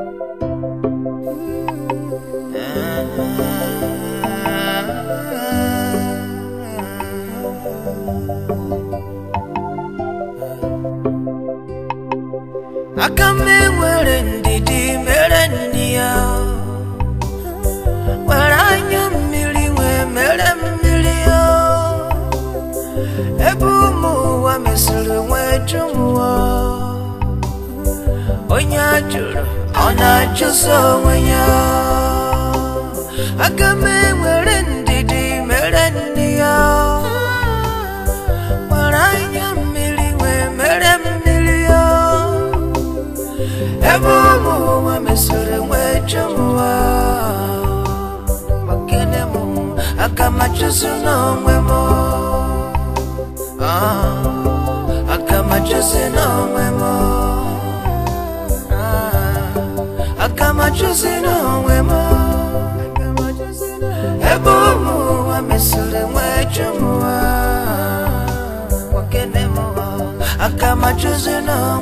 aka m enwere ndidi mere nri ya were anya mmiri wee mere mmiri ya ebe ụmụ ụwa mesịrị nwee jụmụọ onye a jụrụ ọna-achụso onwe ya aga m enwere ndidi mere nne ya nwere anya mmiri wee mere mmiri ya ebe ụmụ ụwa mesoro wee jụwa makene m aga m achụso n'onwe m aga m achụso n'onwe m majozina wema ebomu wamesore mwechumwa my akamajozina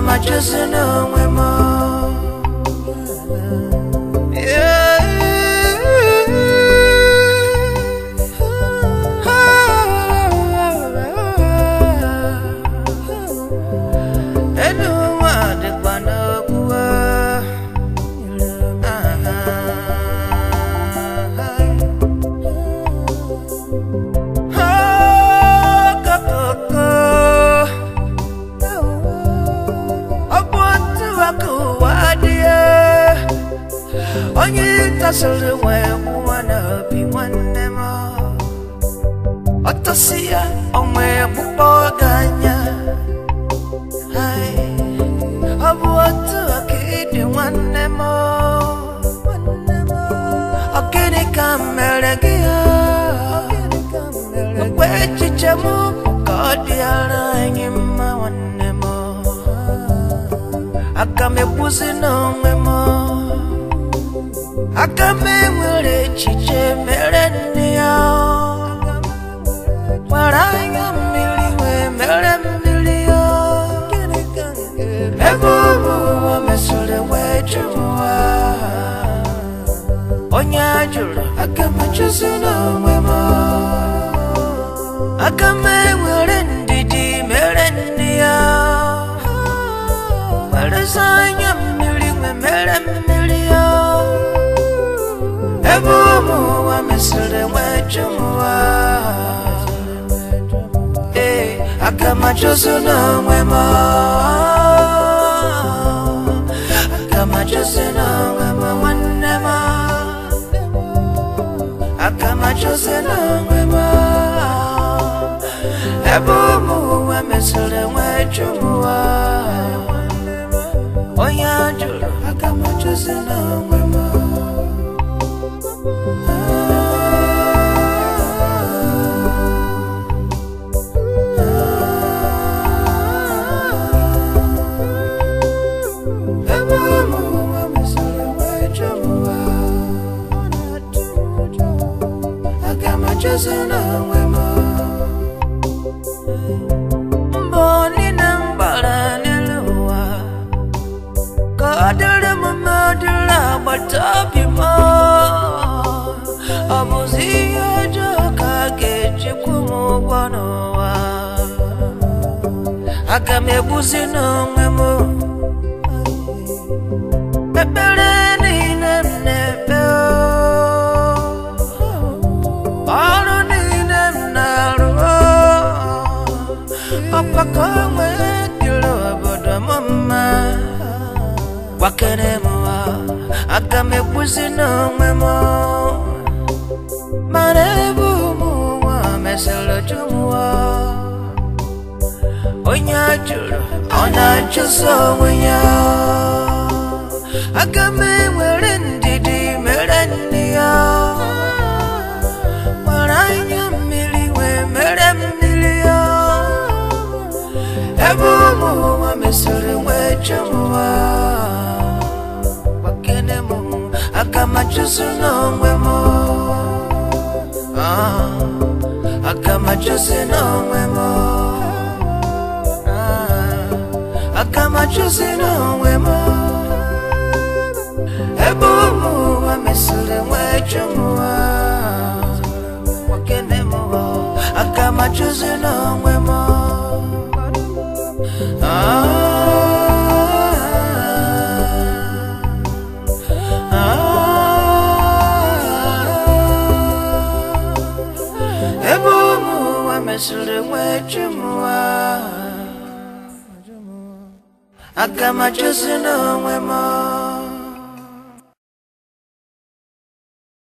machozi na mwema الأجل وموانا بوانما التصية أمي بقاقانيا هاي أبو أتوكيد وانما أكيني كاملكيا Kwechi chamu kukodi alanyi mawannemo Akamebuzi no mwemo aka m enwere echiche mere nne ya gbara anya mmiri wee mere mmiri ya ebe ọbụ ụwa mesoro wee jụrụ ụwa onye a jụrụ aka m chụzi n'onwe m aka m enwere ndidi mere nne ya gbarezi anya mmiri wee mere mmiri ebumu wamisule mwecumuwa eh, akamachoso nomwema akamachoso nomwema mwanema akamachoso nomwema ebumu wamisule mwecumuwa oyanjulo akamachoso nomwema 사랑의 맘 멀리는 바람을 놓아 거들음은 머들라 발톱이 뭐 아버지 아저 가게 집고 먹고 놓아 아까 매부시는 맘 Better Papa kome kilo boda mama Wakene mwa Akame kuzi na mwemo Marebu mwa Meselo jumwa Onya juro Ona chuso mwenye Akame chumwa bakene mu akamachusu nongwe mo ah akamachusu nongwe mo ah akamachusu nongwe mo ebumu wamisure mwe chumwa bakene mu akamachusu nongwe mo ah I got nasiliwe chimwa akama chosi nomwemo